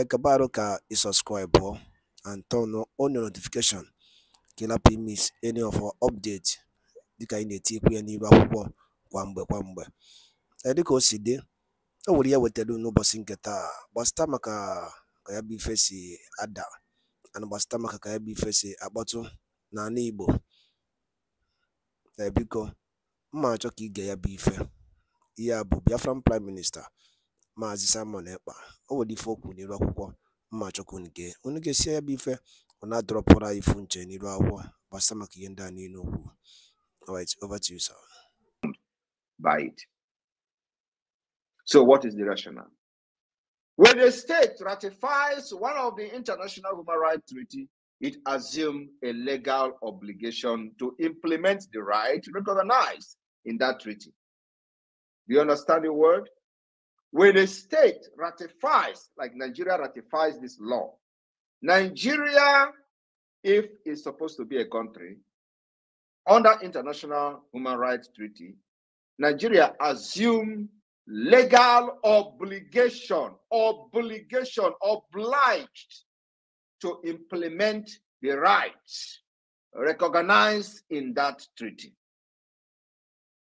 acabar ka i subscribe and turn on your notification ka ị any of our update dịka anyị na-etikwu ya n'iru akwụkwọ kwa mgbe kwa mgbe dịka o si dị o nwere ya e wetara n'ụbọchị nke taa gbasịta maka ka ya bụ ife si ada ana gbasịta maka ka ya bụ ife si akpọtụ n'ala igbo ebiko mma achọ ka ige ya bụ ife ihe a bụ biafran prime minista Maazị Simon Ekpa akwụkwọ mma unu ya bụ ife ifu nche n'iru akwụkwọ gbasa maka ihe ndị a niile okwu alright over to you sir by it so what is the rationale when a state ratifies one of the international human rights treaty it assumes a legal obligation to implement the right recognized in that treaty. Do you understand the word? When a state ratifies, like Nigeria ratifies this law, Nigeria, if it's supposed to be a country, under international human rights treaty, Nigeria assume legal obligation, obligation, obliged to implement the rights recognized in that treaty.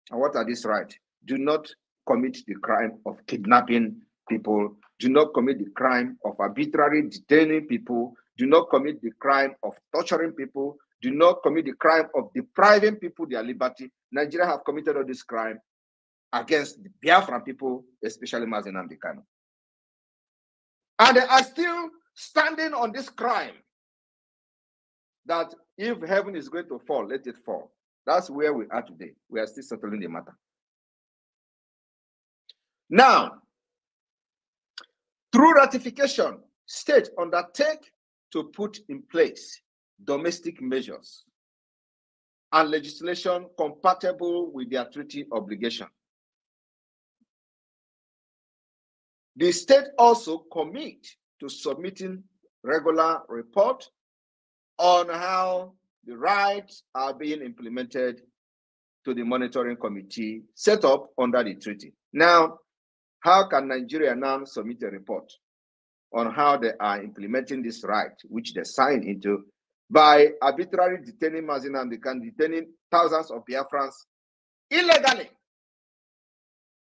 And what are these rights? Do not commit the crime of kidnapping people. Do not commit the crime of arbitrarily detaining people. Do not commit the crime of torturing people. Do not commit the crime of depriving people their liberty. Nigeria have committed all this crime against the Biafran people, especially Mazen Amdekano. And they are still standing on this crime that if heaven is going to fall, let it fall. That's where we are today. We are still settling the matter. Now, through ratification, states undertake to put in place domestic measures and legislation compatible with their treaty obligation. The state also commit to submitting regular report on how the rights are being implemented to the monitoring committee set up under the treaty. Now, how can Nigeria now submit a report on how they are implementing this right, which they signed into, by arbitrarily detaining Mazinamdi and detaining thousands of Biafrans illegally?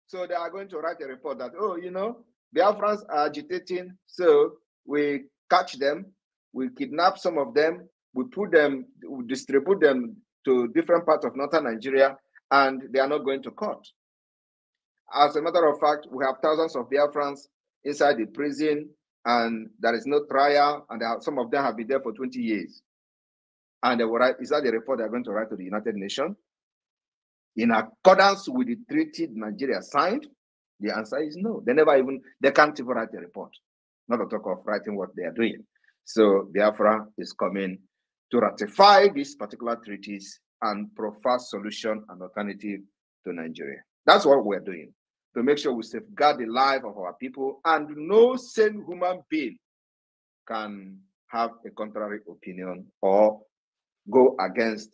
So they are going to write a report that, oh, you know, Biafrans are agitating, so we catch them, we kidnap some of them, we put them, we distribute them to different parts of northern Nigeria, and they are not going to court. As a matter of fact, we have thousands of Biafrans inside the prison, and there is no trial, and are, some of them have been there for 20 years. And they will write, is that the report they're going to write to the United Nations? In accordance with the treaty Nigeria signed, the answer is no. They never even, they can't even write a report. Not to talk of writing what they are doing. So Biafra is coming to ratify these particular treaties and provide solution and alternative to Nigeria. That's what we're doing to make sure we safeguard the life of our people, and no sane human being can have a contrary opinion or go against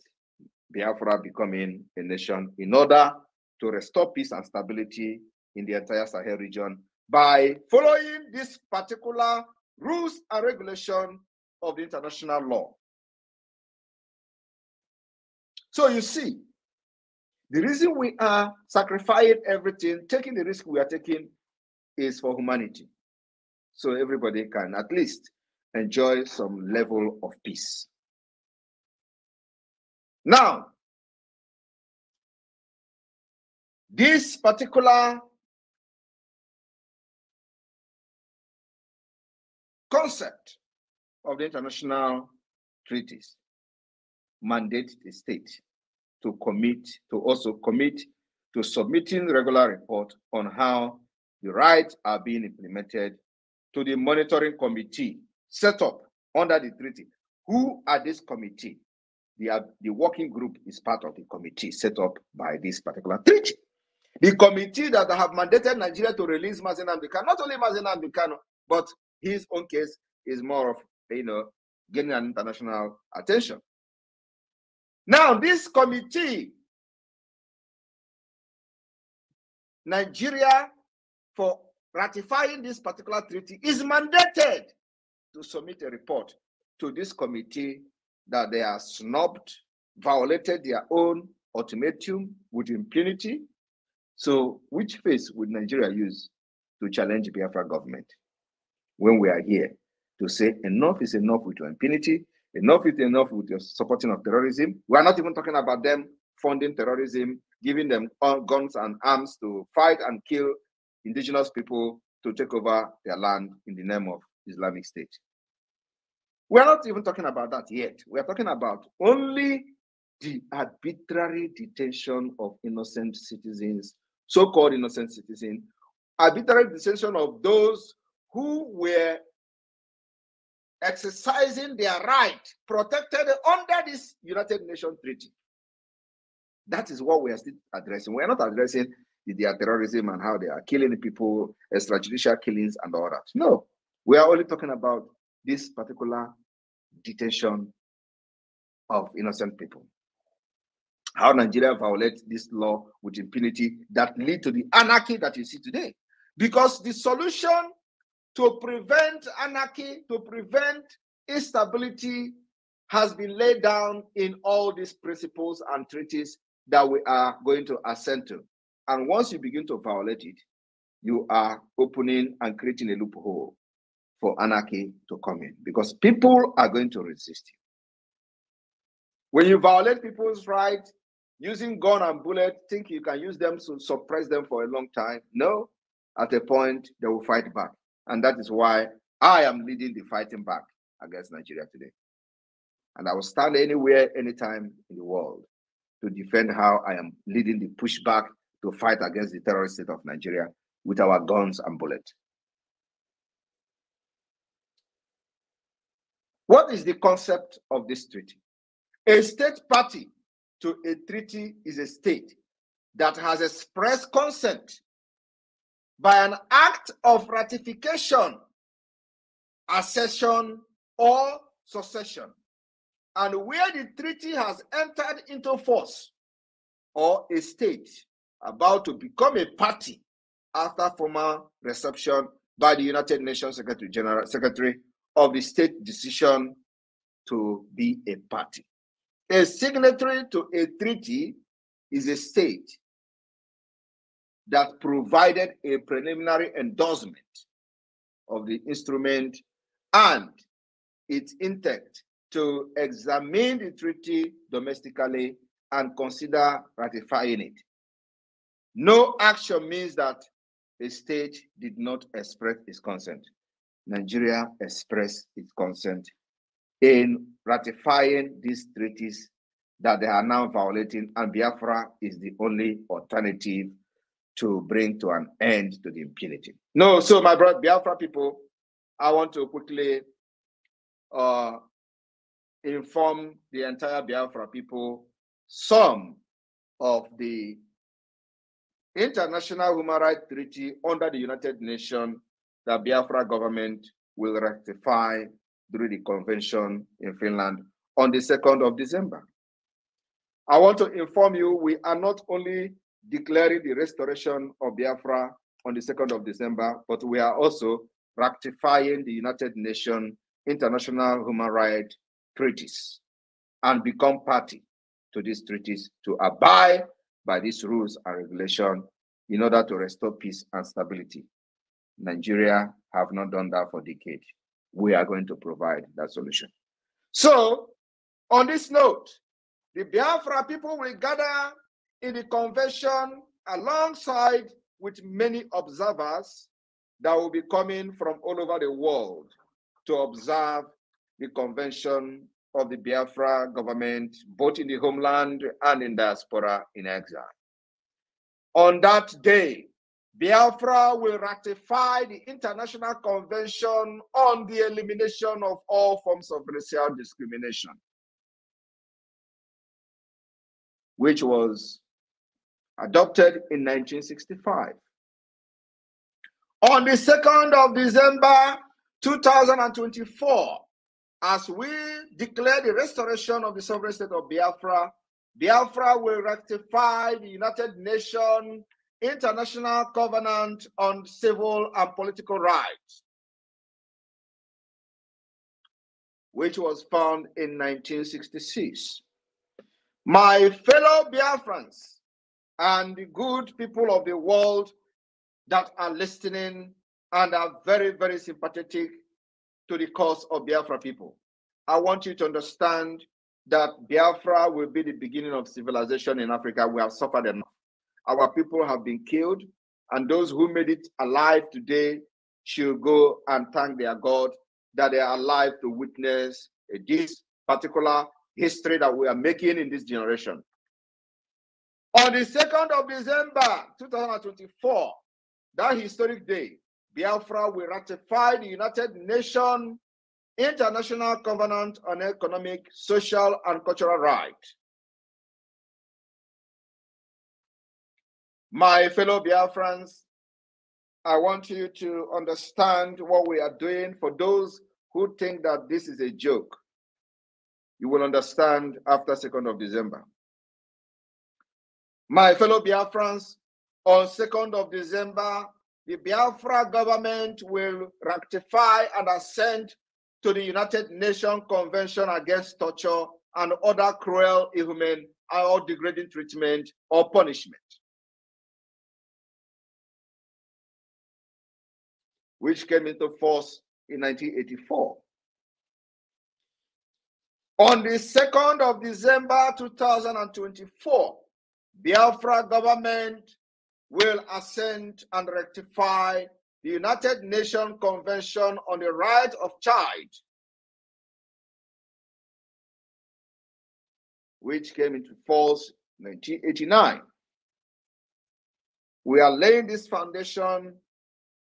Biafra becoming a nation in order to restore peace and stability in the entire Sahel region by following this particular rules and regulation of the international law. So you see, the reason we are sacrificing everything, taking the risk we are taking, is for humanity. So everybody can at least enjoy some level of peace. Now, this particular concept of the international treaties mandate the state to commit to also commit to submitting regular reports on how the rights are being implemented to the monitoring committee set up under the treaty. Who are this committee? The, uh, the working group is part of the committee set up by this particular treaty. The committee that have mandated Nigeria to release Mazen can not only Mazen can but his own case is more of, you know, getting an international attention. Now, this committee, Nigeria, for ratifying this particular treaty, is mandated to submit a report to this committee that they are snubbed, violated their own ultimatum with impunity. So, which face would Nigeria use to challenge Biafra government when we are here to say enough is enough with your impunity? Enough is enough with your supporting of terrorism. We are not even talking about them funding terrorism, giving them guns and arms to fight and kill indigenous people to take over their land in the name of Islamic State. We are not even talking about that yet. We are talking about only the arbitrary detention of innocent citizens, so called innocent citizens, arbitrary detention of those who were exercising their right protected under this United Nations treaty. That is what we are still addressing. We are not addressing their terrorism and how they are killing people, extrajudicial killings, and all that. No, we are only talking about this particular detention of innocent people. How Nigeria violates this law with impunity that lead to the anarchy that you see today. Because the solution to prevent anarchy, to prevent instability, has been laid down in all these principles and treaties that we are going to assent to. And once you begin to violate it, you are opening and creating a loophole for anarchy to come in because people are going to resist you. When you violate people's rights using gun and bullet, think you can use them to suppress them for a long time. No, at a point they will fight back. And that is why I am leading the fighting back against Nigeria today. And I will stand anywhere, anytime in the world to defend how I am leading the pushback to fight against the terrorist state of Nigeria with our guns and bullets. What is the concept of this treaty? A state party to a treaty is a state that has expressed consent by an act of ratification, accession, or succession, and where the treaty has entered into force, or a state about to become a party after formal reception by the United Nations Secretary General Secretary of the state decision to be a party. A signatory to a treaty is a state that provided a preliminary endorsement of the instrument and its intent to examine the treaty domestically and consider ratifying it. No action means that a state did not express its consent. Nigeria expressed its consent in ratifying these treaties that they are now violating, and Biafra is the only alternative to bring to an end to the impunity. No, so my brother Biafra people, I want to quickly uh, inform the entire Biafra people some of the international human rights treaty under the United Nations that Biafra government will rectify during the convention in Finland on the 2nd of December. I want to inform you we are not only declaring the restoration of Biafra on the 2nd of December, but we are also ratifying the United Nations international human rights treaties and become party to these treaties to abide by these rules and regulation in order to restore peace and stability. Nigeria have not done that for decades. We are going to provide that solution. So, on this note, the Biafra people will gather in the convention alongside with many observers that will be coming from all over the world to observe the convention of the Biafra government, both in the homeland and in diaspora in exile. On that day, Biafra will ratify the International Convention on the Elimination of All Forms of Racial Discrimination, which was adopted in 1965. On the 2nd of December 2024, as we declare the restoration of the sovereign state of Biafra, Biafra will ratify the United Nations International Covenant on Civil and Political Rights, which was found in 1966. My fellow Biafrans, and the good people of the world that are listening and are very, very sympathetic to the cause of Biafra people. I want you to understand that Biafra will be the beginning of civilization in Africa. We have suffered enough. Our people have been killed, and those who made it alive today should go and thank their God that they are alive to witness this particular history that we are making in this generation. On the 2nd of December 2024, that historic day, Biafra will ratify the United Nations International Covenant on Economic, Social, and Cultural Rights. My fellow Biafrans, I want you to understand what we are doing for those who think that this is a joke. You will understand after 2nd of December. My fellow Biafrans, on 2nd of December, the Biafra government will rectify and assent to the United Nations Convention Against Torture and Other Cruel, Inhuman, or Degrading Treatment or Punishment, which came into force in 1984. On the 2nd of December 2024, Biafra government will assent and rectify the United Nations Convention on the Right of Child, which came into force in 1989. We are laying this foundation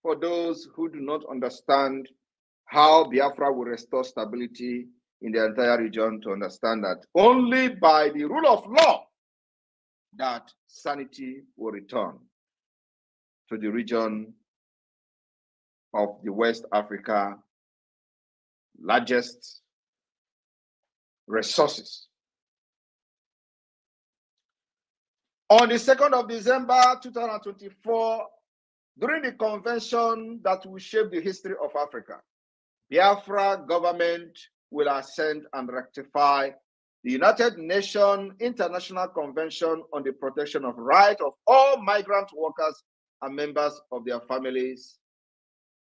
for those who do not understand how Biafra will restore stability in the entire region to understand that only by the rule of law that sanity will return to the region of the West Africa largest resources. On the 2nd of December 2024, during the convention that will shape the history of Africa, Biafra government will ascend and rectify the United Nations International Convention on the Protection of Rights of All Migrant Workers and Members of Their Families,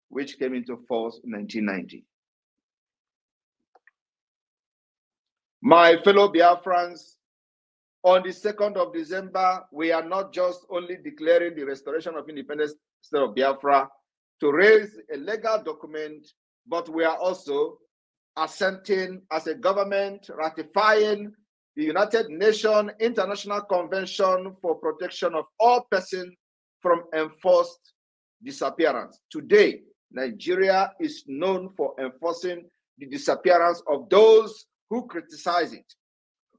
which came into force in 1990. My fellow Biafrans, on the 2nd of December, we are not just only declaring the restoration of independence state of Biafra to raise a legal document, but we are also assenting as a government, ratifying the United Nations International Convention for Protection of All Persons from Enforced Disappearance. Today, Nigeria is known for enforcing the disappearance of those who criticize it,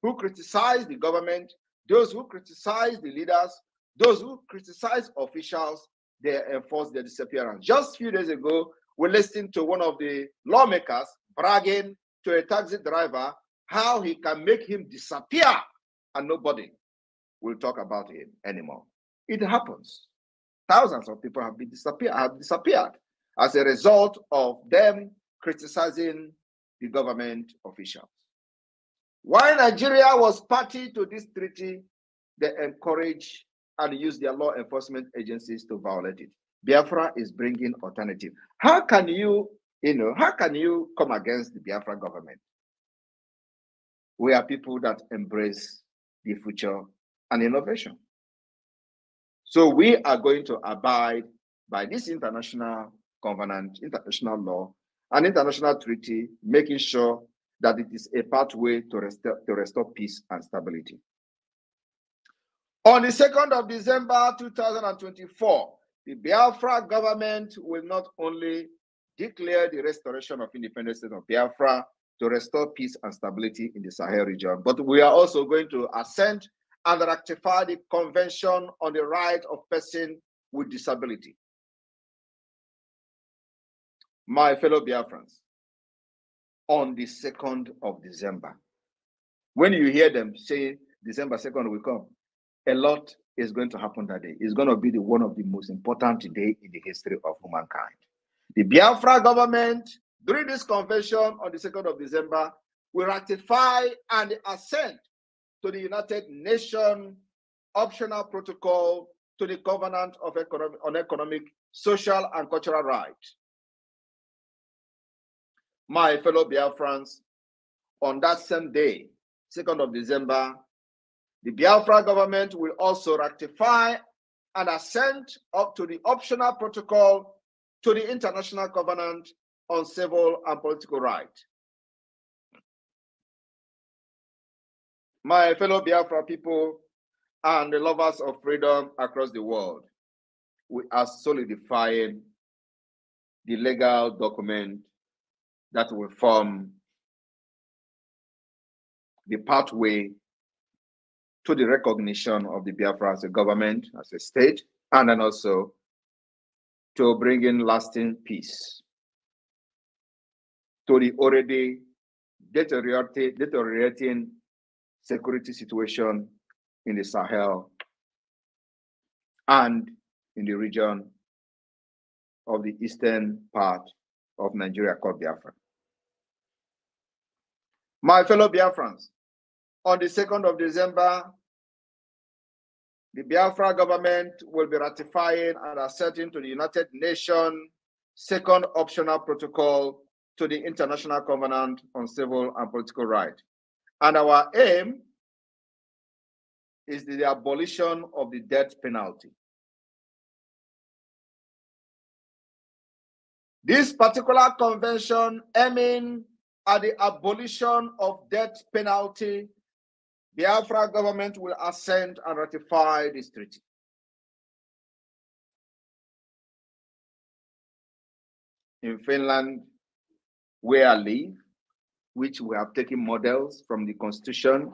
who criticize the government, those who criticize the leaders, those who criticize officials, they enforce their disappearance. Just a few days ago, we listened to one of the lawmakers bragging to a taxi driver how he can make him disappear and nobody will talk about him anymore. It happens. Thousands of people have been disappear have disappeared as a result of them criticizing the government officials. While Nigeria was party to this treaty, they encourage and use their law enforcement agencies to violate it. Biafra is bringing alternative. How can you you know, how can you come against the Biafra government? We are people that embrace the future and innovation. So we are going to abide by this international covenant, international law, and international treaty, making sure that it is a pathway to restore, to restore peace and stability. On the 2nd of December 2024, the Biafra government will not only declare the restoration of independent state of Biafra to restore peace and stability in the Sahel region. But we are also going to assent and ratify the Convention on the Right of Persons with Disability. My fellow Biafrans, on the 2nd of December, when you hear them say December 2nd will come, a lot is going to happen that day. It's going to be the, one of the most important day in the history of humankind. The Biafra government, during this convention on the 2nd of December, will ratify and assent to the United Nations optional protocol to the Covenant of economic, on Economic, Social, and Cultural Rights. My fellow Biafrans, on that same day, 2nd of December, the Biafra government will also ratify and assent up to the optional protocol to the International Covenant on Civil and Political Rights. My fellow Biafra people and the lovers of freedom across the world, we are solidifying the legal document that will form the pathway to the recognition of the Biafra as a government, as a state, and then also to bring in lasting peace to the already deteriorating, deteriorating security situation in the Sahel and in the region of the eastern part of Nigeria called Biafra. My fellow Biafrans, on the 2nd of December the Biafra government will be ratifying and assenting to the United Nations second optional protocol to the International Covenant on Civil and Political Rights. And our aim is the abolition of the death penalty. This particular convention aiming at the abolition of death penalty Biafra government will assent and ratify this treaty. In Finland, where I live, which we have taken models from the constitution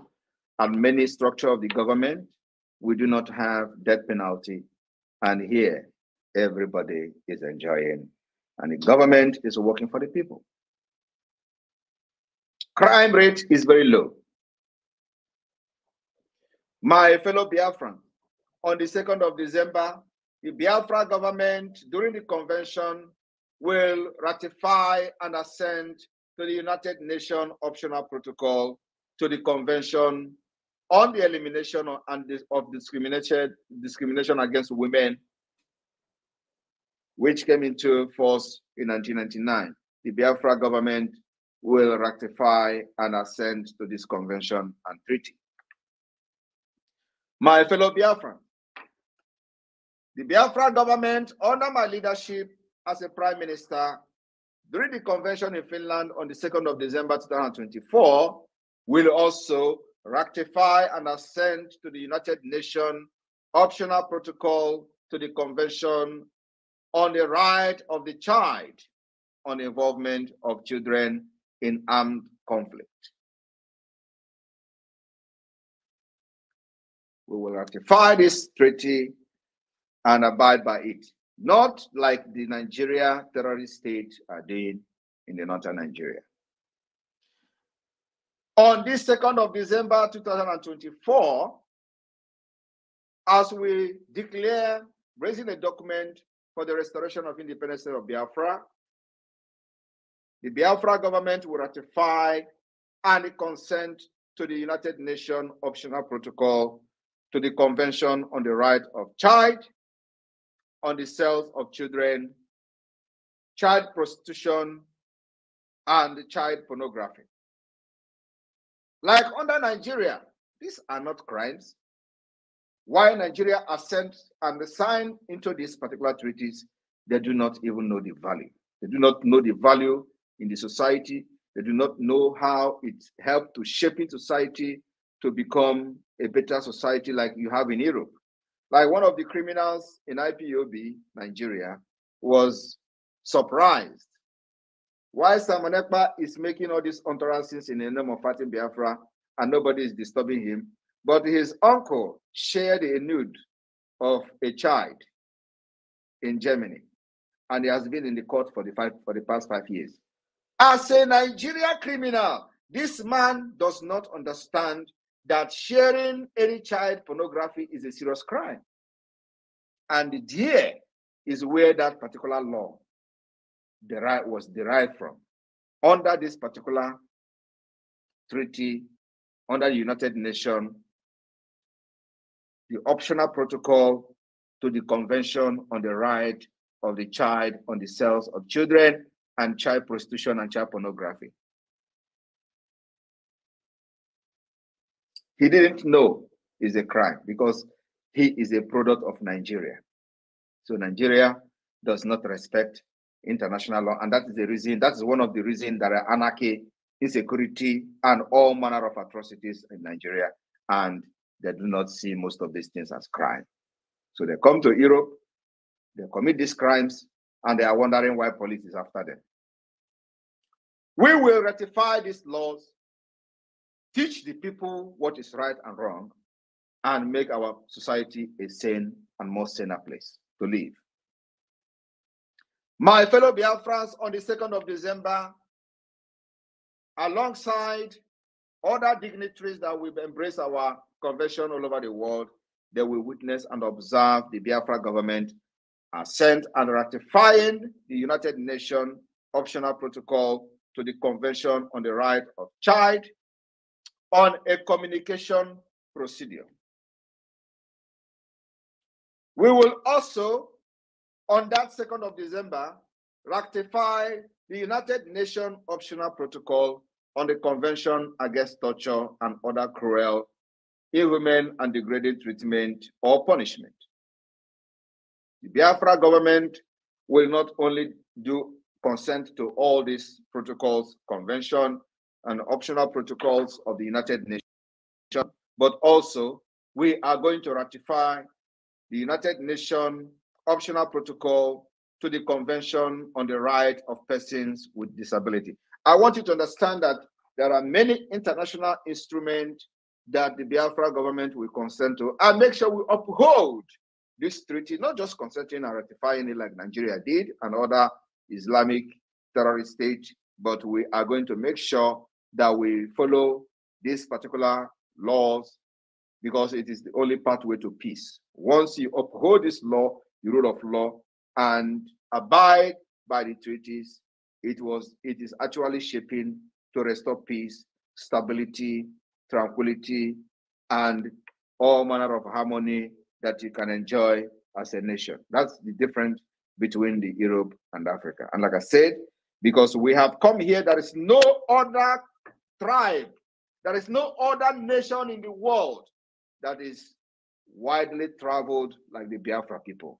and many structure of the government, we do not have death penalty. And here, everybody is enjoying, and the government is working for the people. Crime rate is very low. My fellow Biafran, on the 2nd of December, the Biafra government during the convention will ratify and assent to the United Nations Optional Protocol to the Convention on the Elimination of, Discrimination Against Women, which came into force in 1999. The Biafra government will ratify and assent to this convention and treaty. My fellow Biafran, the Biafra government, under my leadership as a prime minister, during the convention in Finland on the 2nd of December 2024, will also ratify and assent to the United Nations optional protocol to the Convention on the Right of the Child on the Involvement of Children in Armed Conflict. we will ratify this treaty and abide by it. Not like the Nigeria terrorist state are doing in the northern Nigeria. On this 2nd of December 2024, as we declare raising a document for the restoration of independence of Biafra, the Biafra government will ratify and consent to the United Nations Optional Protocol to the Convention on the Right of Child, on the sales of children, child prostitution, and child pornography. Like under Nigeria, these are not crimes. Why Nigeria assent and signed into these particular treaties, they do not even know the value. They do not know the value in the society. They do not know how it helped to shape in society to become a better society like you have in Europe. Like one of the criminals in IPOB, Nigeria, was surprised why Simon Ekpa is making all these utterances in the name of fighting Biafra and nobody is disturbing him. But his uncle shared a nude of a child in Germany, and he has been in the court for the five, for the past five years. As a Nigeria criminal, this man does not understand that sharing any child pornography is a serious crime. And here is where that particular law derived, was derived from. Under this particular treaty, under the United Nations, the optional protocol to the Convention on the Right of the Child on the Cells of Children and Child Prostitution and Child Pornography. he didn't know is a crime because he is a product of Nigeria. So Nigeria does not respect international law, and that is the reason. That is one of the reasons that are anarchy, insecurity, and all manner of atrocities in Nigeria, and they do not see most of these things as crime. So they come to Europe, they commit these crimes, and they are wondering why police is after them. We will ratify these laws teach the people what is right and wrong, and make our society a sane and more saner place to live. My fellow Biafrans, on the 2nd of December, alongside other dignitaries that will embrace our convention all over the world, they will witness and observe the Biafra government assent and ratifying the United Nations optional protocol to the Convention on the Right of Child on a communication procedure. We will also, on that 2nd of December, ratify the United Nations Optional Protocol on the Convention Against Torture and Other Cruel, Inhuman, and Degrading Treatment or Punishment. The Biafra government will not only do consent to all these protocols, convention, and optional protocols of the United Nations, but also we are going to ratify the United Nations optional protocol to the Convention on the Right of Persons with Disability. I want you to understand that there are many international instruments that the Biafra government will consent to and make sure we uphold this treaty, not just consenting and ratifying it like Nigeria did and other Islamic terrorist states. but we are going to make sure that we follow these particular laws because it is the only pathway to peace. Once you uphold this law, the rule of law, and abide by the treaties, it was it is actually shaping to restore peace, stability, tranquility, and all manner of harmony that you can enjoy as a nation. That's the difference between the Europe and Africa. And like I said, because we have come here, there is no other tribe. There is no other nation in the world that is widely traveled like the Biafra people.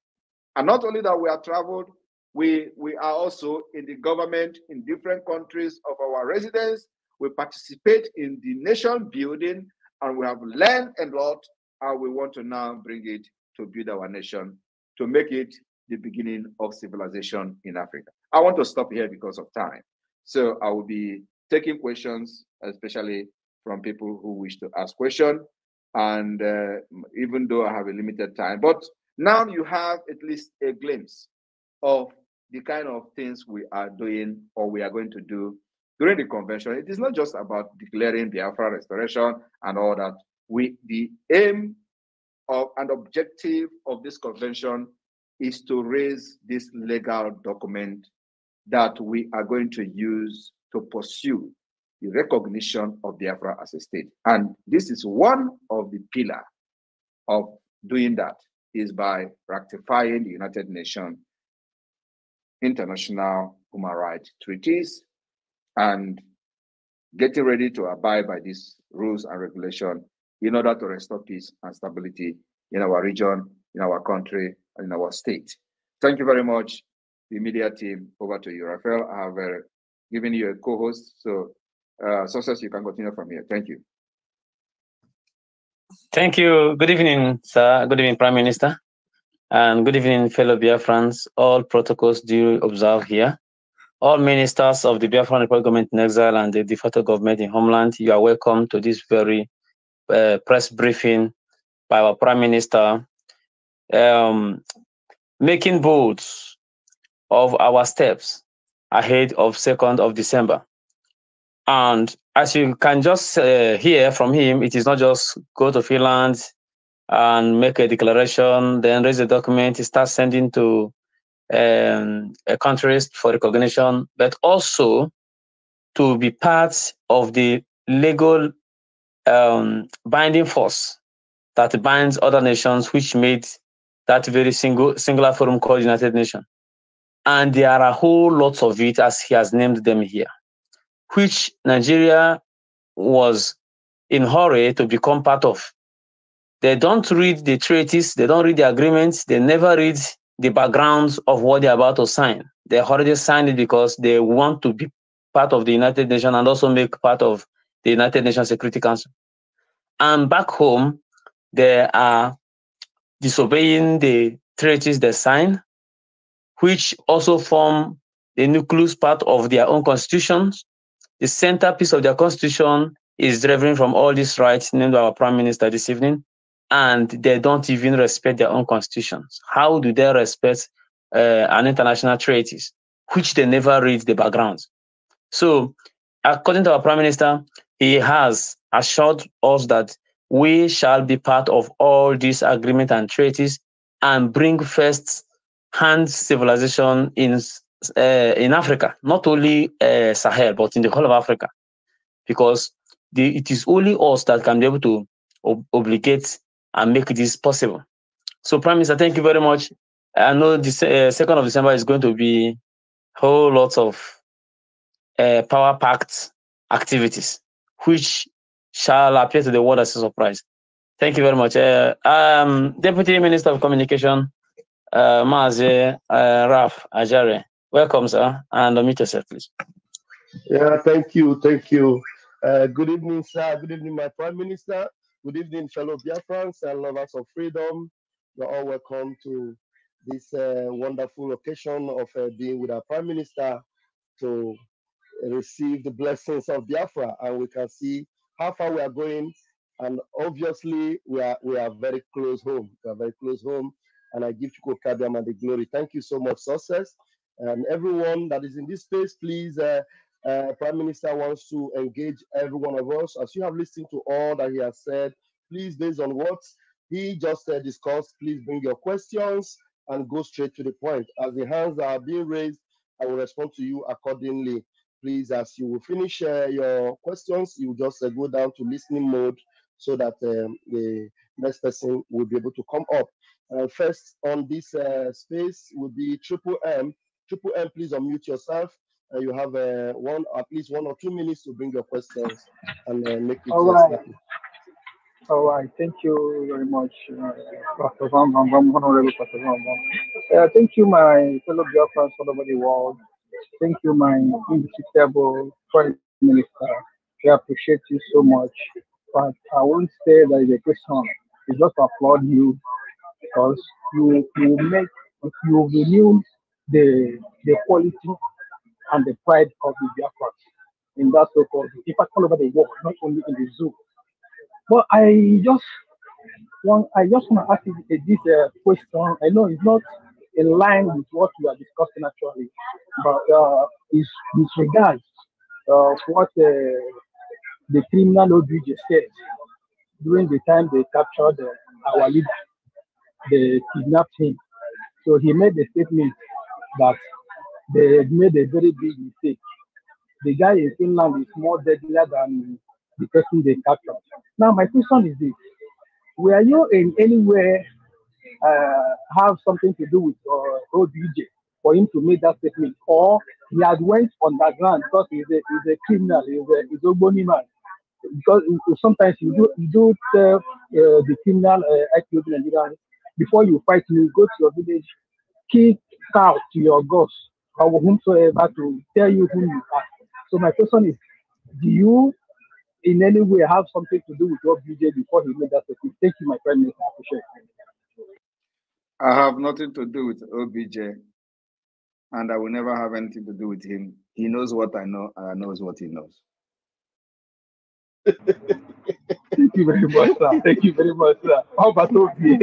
And not only that we are traveled, we, we are also in the government in different countries of our residence. We participate in the nation building and we have learned a lot and we want to now bring it to build our nation, to make it the beginning of civilization in Africa. I want to stop here because of time. So I will be taking questions, especially from people who wish to ask questions. And uh, even though I have a limited time, but now you have at least a glimpse of the kind of things we are doing or we are going to do during the convention. It is not just about declaring Biafra restoration and all that. We the aim of an objective of this convention is to raise this legal document that we are going to use to pursue the recognition of Biafra as a state. And this is one of the pillar of doing that is by ratifying the United Nations international human rights treaties and getting ready to abide by these rules and regulation in order to restore peace and stability in our region, in our country, and in our state. Thank you very much, the media team. Over to you, Rafael. I have a given you a co-host. So, uh, success, you can continue from here. Thank you. Thank you. Good evening, sir. Good evening, Prime Minister. And good evening, fellow Biafrans. All protocols do observe here. All ministers of the Biafran Republic government in exile and the de facto government in homeland, you are welcome to this very uh, press briefing by our Prime Minister, um, making bold of our steps ahead of 2nd of December. And as you can just uh, hear from him, it is not just go to Finland and make a declaration, then raise a document, start sending to um, country for recognition, but also to be part of the legal um, binding force that binds other nations which made that very single singular forum called United Nations. And there are a whole lot of it, as he has named them here, which Nigeria was in hurry to become part of. They don't read the treaties, they don't read the agreements, they never read the backgrounds of what they're about to sign. They already signed it because they want to be part of the United Nations and also make part of the United Nations Security Council. And back home, they are disobeying the treaties they sign which also form the nucleus part of their own constitutions. The centerpiece of their constitution is driven from all these rights named by our prime minister this evening, and they don't even respect their own constitutions. How do they respect uh, an international treaty, which they never read the background? So, according to our prime minister, he has assured us that we shall be part of all these agreements and treaties and bring first hand civilization in uh, in Africa, not only uh, Sahel, but in the whole of Africa, because the, it is only us that can be able to ob- obligate and make this possible. So, Prime Minister, thank you very much. I know the eh, second uh, of December is going to be whole lot of power packed activities, which shall appear to the world as a surprise. Thank you very much. Uh, um, Deputy Minister of Communication, uh, Mazi uh, Raf Ajare. Welcome, sir, and unmute yourself, please. Yeah, thank you, thank you. Uh, good evening, sir. Good evening, my Prime Minister. Good evening, fellow Biafrans and lovers of freedom. You're all welcome to this uh, wonderful occasion of uh, being with our Prime Minister to receive the blessings of Biafra. And we can see how far we are going. And obviously, we are, we are very close home. We are very close home and I give Chuko and the glory. Thank you so much, success. And everyone that is in this space, please, uh, uh, Prime Minister wants to engage every one of us. As you have listened to all that he has said, please, based on what he just uh, discussed, please bring your questions and go straight to the point. As the hands are being raised, I will respond to you accordingly. Please, as you will finish uh, your questions, you just uh, go down to listening mode so that um, the next person will be able to come up. Uh, first on this uh, space will be Triple M. Triple M, please unmute yourself. Uh, you have one, at least one or two minutes to bring your questions and make it. All right. Happen. All right. Thank you very much, Pastor Van Van Van, Honorable Pastor Van Van. Thank you, my fellow Biafrans all over the world. Thank you, my indefatigable foreign minister. We appreciate you so much. But I won't say that a question. is just applaud you because you you make you renew the the quality and the pride of the Biafra in that so-called in fact all over the world, not only in the zoo. But I just want I just want to ask you this uh, question. I know it's not in line with what we are discussing actually, but uh, is with regards uh, what uh, the criminal OBJ said during the time they captured uh, our leader they kidnapped him. So he made a statement that they made a very big mistake. The guy in Finland is more deadlier than the person they captured. Now, my question is this Were you in any way uh, have something to do with uh, DJ for him to make that statement? Or he had went underground because he's a, he's a criminal, he's a, he's a bony man. Because sometimes you do, you do tell uh, the criminal uh, ex-Nigerian before you fight you go to your village, kick out your gods or whomsoever to tell you who you are. So my question is, do you in any way have something to do with your BJ before he made that statement? Thank you, my friend. I appreciate it. I have nothing to do with OBJ, and I will never have anything to do with him. He knows what I know, and I knows what he knows. you very much, sir. Thank you very much, sir. obi obi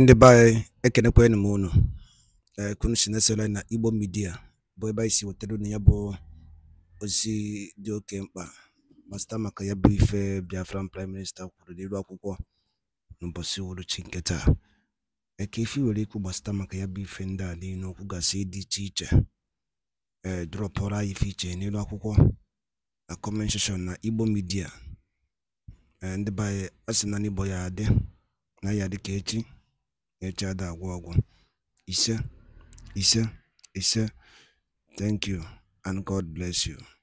ndị be anyị ekenekwa enyi na Igbo Media bụ ebe anyị si wetara ya bụ ozi dị oke mkpa ma sita ya bụ ife Biafran Prime Minister kwuru n'elu akwụkwọ n'ụbọchị uhuruchi eke ifi nwere ikwu gbasata maka ya bụ ife ndị a gasị dị iche iche Eh, drop drọpụrụ anyị n'elu akwụkwọ na comment na Igbo midia um ndị be na n'Igbo ya adị na ya dị ka echi ada agwụ ọgwụ ise ise ise thank you and God bless you